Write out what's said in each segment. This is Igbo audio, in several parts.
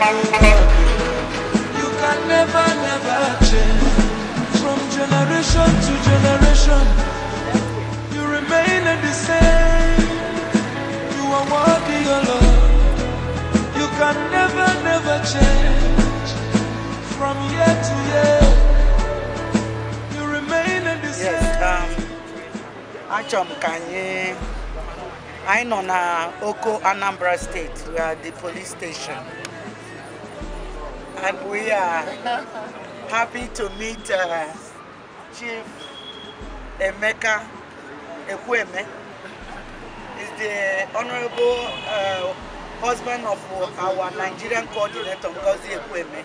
You can never, never change from generation to generation. You remain the same. You are worthy, your Lord. You can never, never change from year to year. You remain the same. Yes, um, Achọm ka I'm on na Oko Anambra State, we are the police station and we are happy to meet uh, Chief Emeka Ekweme. Is the honorable uh, husband of our Nigerian coordinator, Ngozi Ekweme.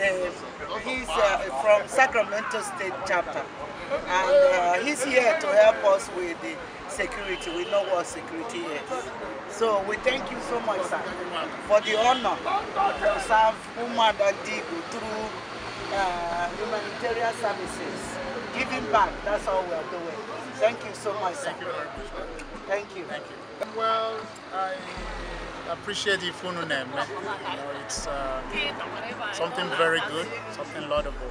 And, uh, he's from Sacramento State chapter. And uh, he's here to help us with the security. We know what security is. So we thank you so much, sir, for the honor to serve Umad Adigo through uh, humanitarian services. Giving back, that's all we are doing. Thank you so much, sir. Thank you Thank you. Thank you. Well, I appreciate the phone name. Eh? You know, it's uh, something very good, something laudable.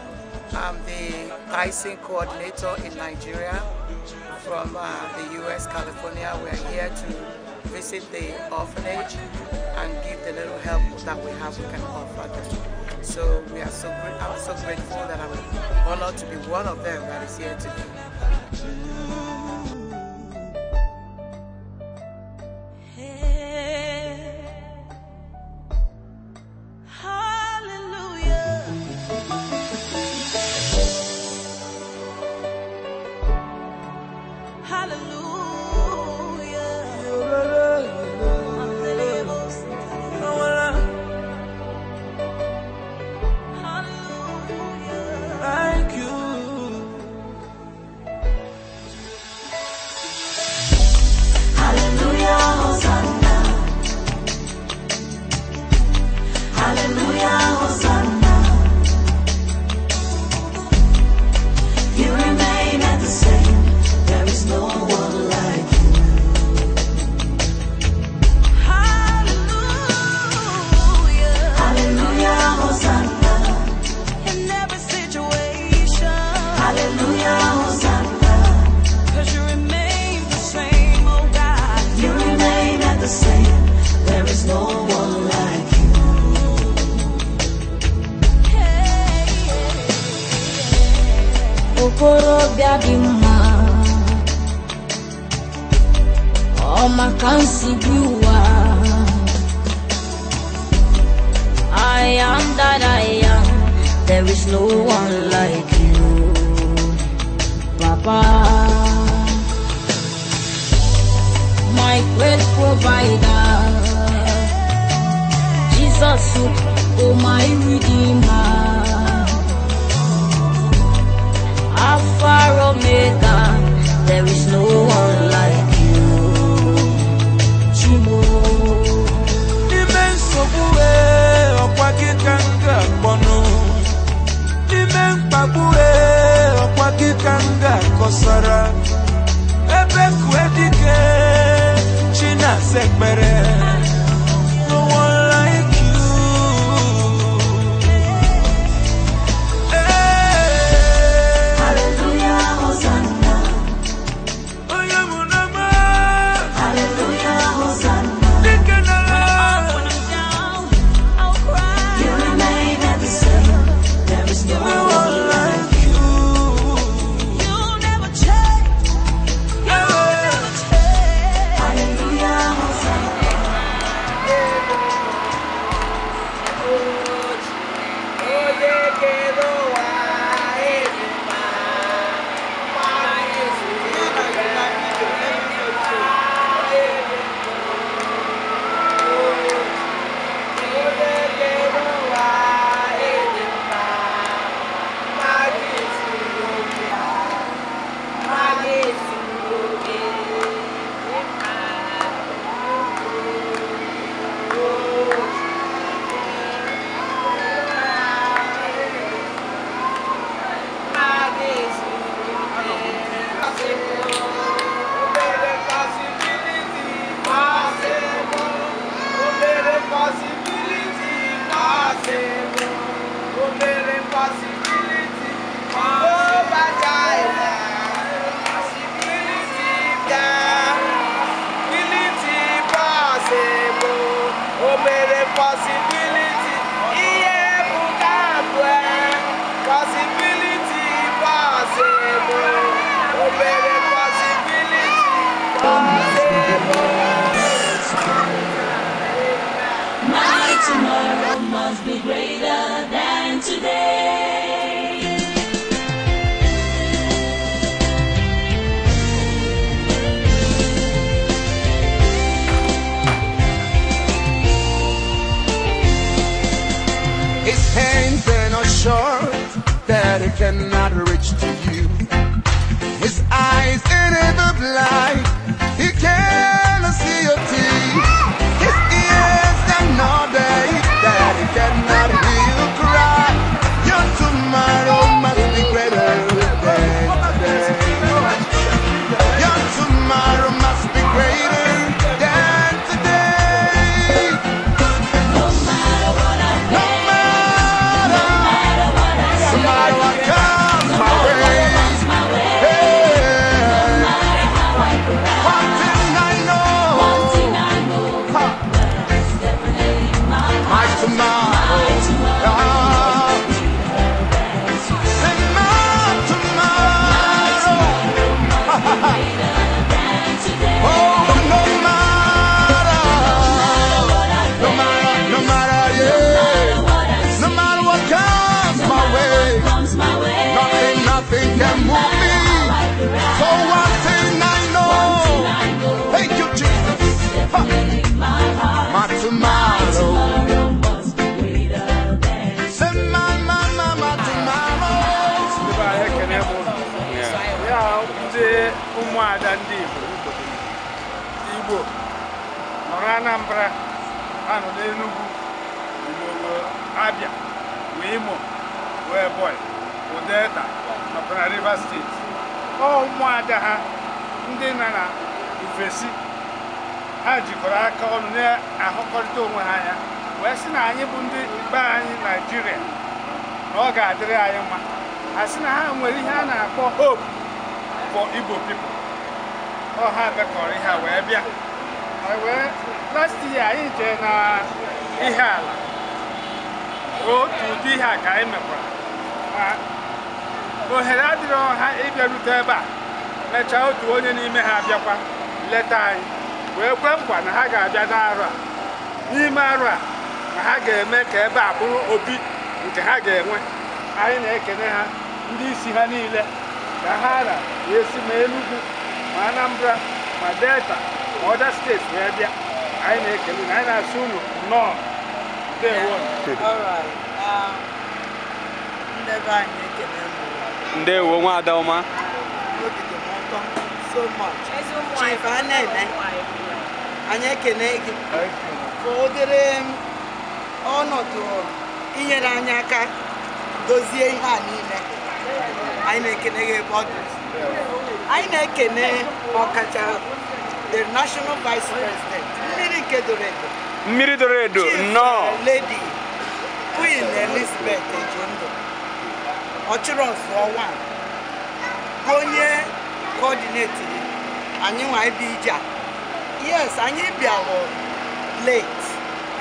I'm the pricing coordinator in Nigeria from uh, the U.S. California. We're here to visit the orphanage and give the little help that we have we can offer them. So we are so I'm so grateful that I'm honored to be one of them that is here today. ọma my m si bi I am that I am there is no one like you Papa my great provider Jesus oh my redeemer Alpha Omega nwere possibility. Yeah, ebuka bụ e pọsibiliti bọọsụ bụ Anambra anọ enugu Abia wee Imo wee ụdị Delta nakwa na Rivers steeti ọ ụmụada ha ndị na na ofesi ha jikọrọ aka ọnụ na-ahụkọrịta onwe ha anya wee sị na anyị bụ ndị be anyị Naijiria na ọ ga-adịrị anyị mma a sị na ha nwere ihe a na-akpọ hope for Igbo pipo ọ ha bekọrọ ihe a wee bịa wee last year anyị jee na ihe ala otu ụdị ihe a ka anyị mekwara ma ohere adịrọ ha ịbịarute ebe a mechaa otu onye n'ime ha bịakwa leta anyị wee kwe nkwa na ha ga-abịa n'arọ a n'ime arọ a na ha ga-eme ka ebe a bụrụ obi nke ha ga-enwe anyị na-ekene ha ndị isi ha niile ka ha na esi ma ma Anambra ma Delta ọda steeti wee bịa anyị na-ekele anyị na-asụ nnọọ ndewo ndewo nwa adaoma Chief Anene anyị ekene gị ka obere ọnọdụ inyere anyị aka dozie ihe a niile anyị na-ekene gị ọ dị anyị na-ekene ọkacha the national vice president Miri kedoredo Miri Kedoredo, no lady queen elizabeth ejondo ọchịrọsụọ wan onye coordinating anyị nwa ebe ije yes anyị bịara late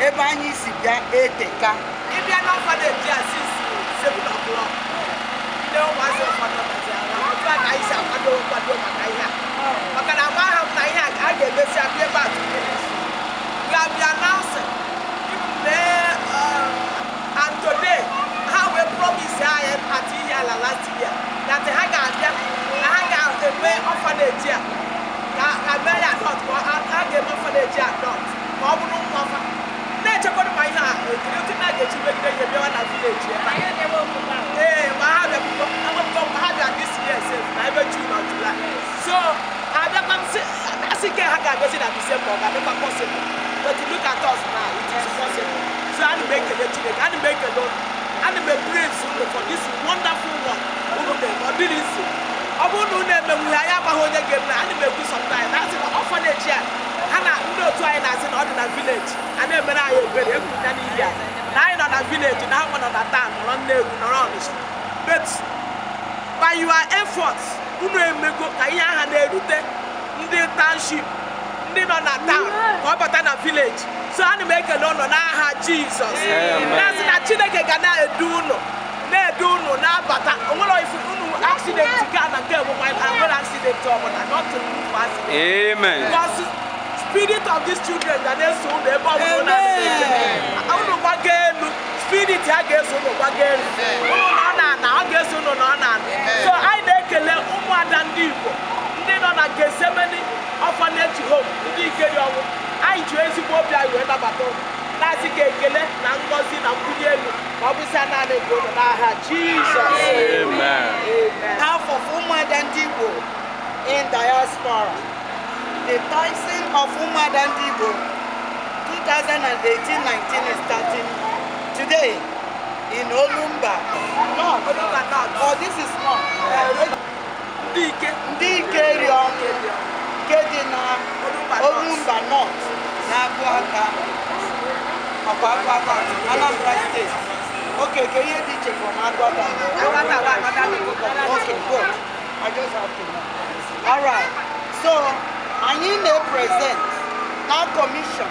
Eba anyị si bịa eteka ịbịa n'ọfọdụ ejia since 7 o'clock don't ndị ụmụazị ụfọdụ ba kaisa kwado kwado maka ihe maka na agba ahụ na ihe a ka a ga and today ha wee promise anyị at ihe eh, ala last year that ha ga-abịa na ha ga-eme ọfaneji a ka mee ya dọt ha ga-eme ọfaneji a dọt ka ọ bụrụ nwa na-echekwara ma ihe a ekiri otu na-aga echi megide ihe bịawa na vileji ga na Disemba ọ ga-adịkwa possible but look at us now it is so m ekele m ekele m for this wonderful work ọ dịrị nso ọ bụrụ na unu emenwughị agbaghị onye ga-eme ana m ekwu sometimes na a ha na ndị otu anyị na-asị na ọ dị na village a na-emere anyị obere egwu na nọ na village na ha nọ na but emego ka ihe aha na-erute ndị township ndị nọ na taụn ka ọ bata na vileji so ana m ekele ụnụ n'aha jizọs na-asị na chineke ga na-edu ụnụ na-edu ụnụ na-abata onwere ụnụ aksidenti ka na nke bụ nwere aksidenti ọbụla nọtụrụ nnukwu aksidenti spirit of these children ga na-eso ụnụ ebe ọ bụrụ na ụnụ gbaga elu spirit ya ga-eso ụnụ gbaga elu ụnụ na ọ na-ana ọ ga-eso ụnụ na ọ na-ana so anyị na-ekele ụmụada ndị Igbo ndị nọ na Getsemani ọfaneti hom ndị ikeri ọnwụ anyị ji ezigbo obi anyị wee nabata ụlọ na-asị ka ekele na ngọzi na mkpụrụ elu ma ọ bụsa naanị nke ụlọ n'aha jizọs afọ ụmụada ndị igbo in diaspora the toxin of ụmụada ndị igbo 2018-19 is starting today in olumba no olumba not oh this is not ndị ike ndị ike ri nke dị na olumba nọt na-agụ aka makwa agụ aka anambra steeti oke ke ihe dị iche from agụata okay good i just have to know all right so anyị na present na commission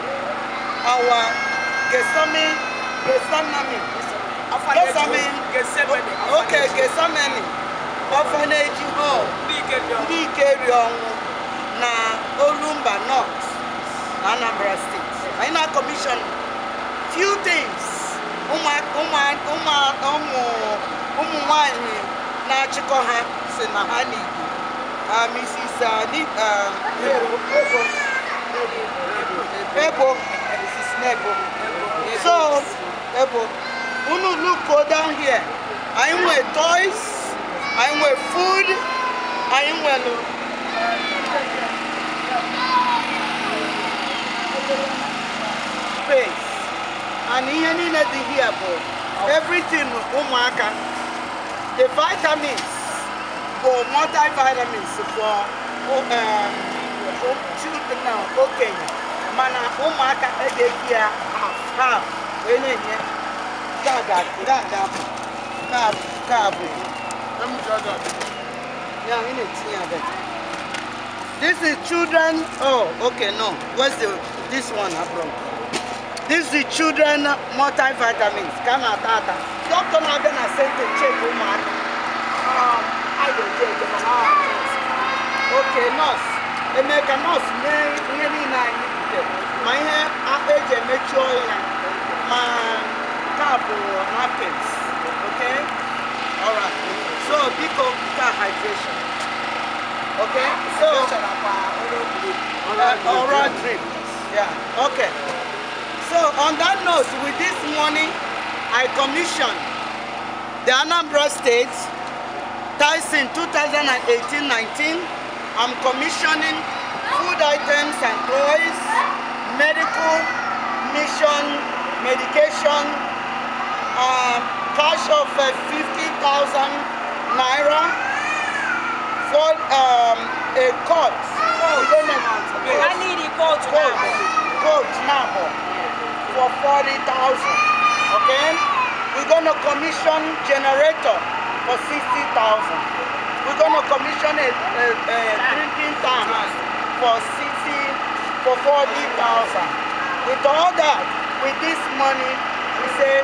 our gesami gesanami gesami okay gesamani orphanage hall ndị ike rie ọnwụ na olumba north anambra state anyị na kọmishọn few things ụmụ nwanyị na-achịkọ ha si na ha n'igbo mrs um, ebo mrs nebo so ebo unu look go down here anyị nwee toys anyị nwee food anyị nwere and ihe niile dị here bụ everything ụmụaka the vitamins bụ multivitamins for um, children na okenye mana ụmụaka edeghị ya half wee na-enye kaabụ ya ị na-etinye abịa This is children. Oh, okay, no. Where's the this one from? This is children multivitamins. Come out tata. Doctor na bena sent to check woman. Um, I don't check. them. Okay, nurse. Emeka nurse ne really na nite. My hair age mature Man, couple cap napkins. Oh, okay? All right. So biko ka hydration. Okay? So All right, drink. Yeah. Okay. So on that note, with this morning, I commissioned the Anambra State Tyson 2018-19. I'm commissioning food items and toys, medical, mission, medication, uh, cash of uh, 50,000 naira for um, a court. Court. I need a court. Court. Court. Court. Court for 40,000, okay? We're gonna commission generator for 60,000. We're gonna commission a, a, a drinking tank for 60, for 40,000. With all that, with this money, we say,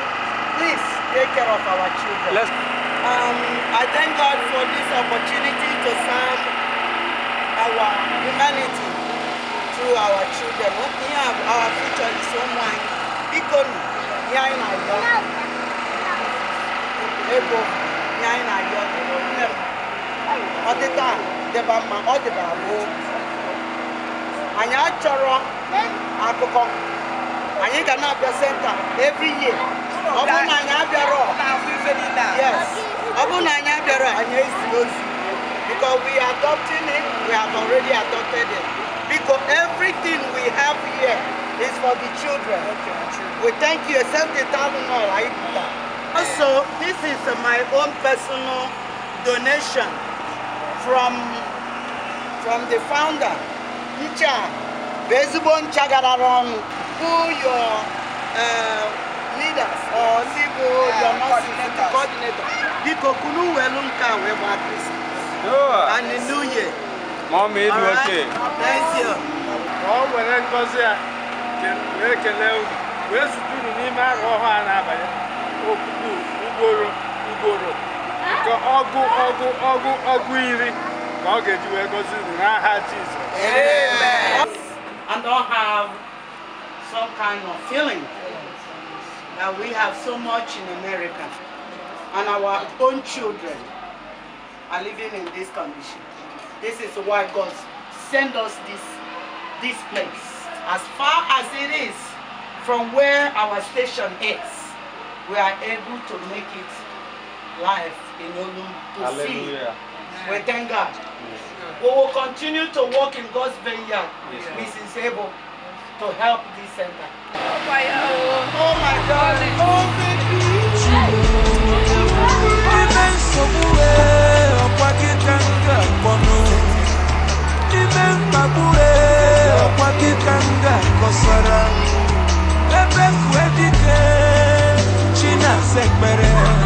please take care of our children. Let's um, I thank God for this opportunity to serve our humanity through our children. We have our future is someone Ikonu ihe anyị na-ayọ ego ihe anyị na-ayọ ọdịda dịba mma ọ dịba abụọ anyị achọrọ akụkọ anyị ga na-abịa senta every year ọ bụrụ na anyị abịarọ yes ọ bụrụ na anyị abịarọ anyị ezi ozi because we adopting it we have already adopted it because everything we have here It's for the children. Okay, We thank you. Except the thousand naira. Also, this is my own personal donation from from the founder, Ncha Bezubon Chagadarong, who your uh, leaders or Sibu, uh, your nursing coordinator. Biko kunu welu nka weba Christ. And the new year. Mom, it's okay. Thank you. Oh, well, that's ekele and all have some kind of feeling that we have so much in America and our own children are living in this condition. This is why God sent us this, this place as far as it is from where our station is, we are able to make it live in Olu to Hallelujah. see. We thank God. Yes. We will continue to work in God's vineyard. Yes. Mrs. able to help this center. Oh my, oh, oh my God. Oh, baby. Ibe mgbagbu Kikanga kosara ebe fu ekike China sekpere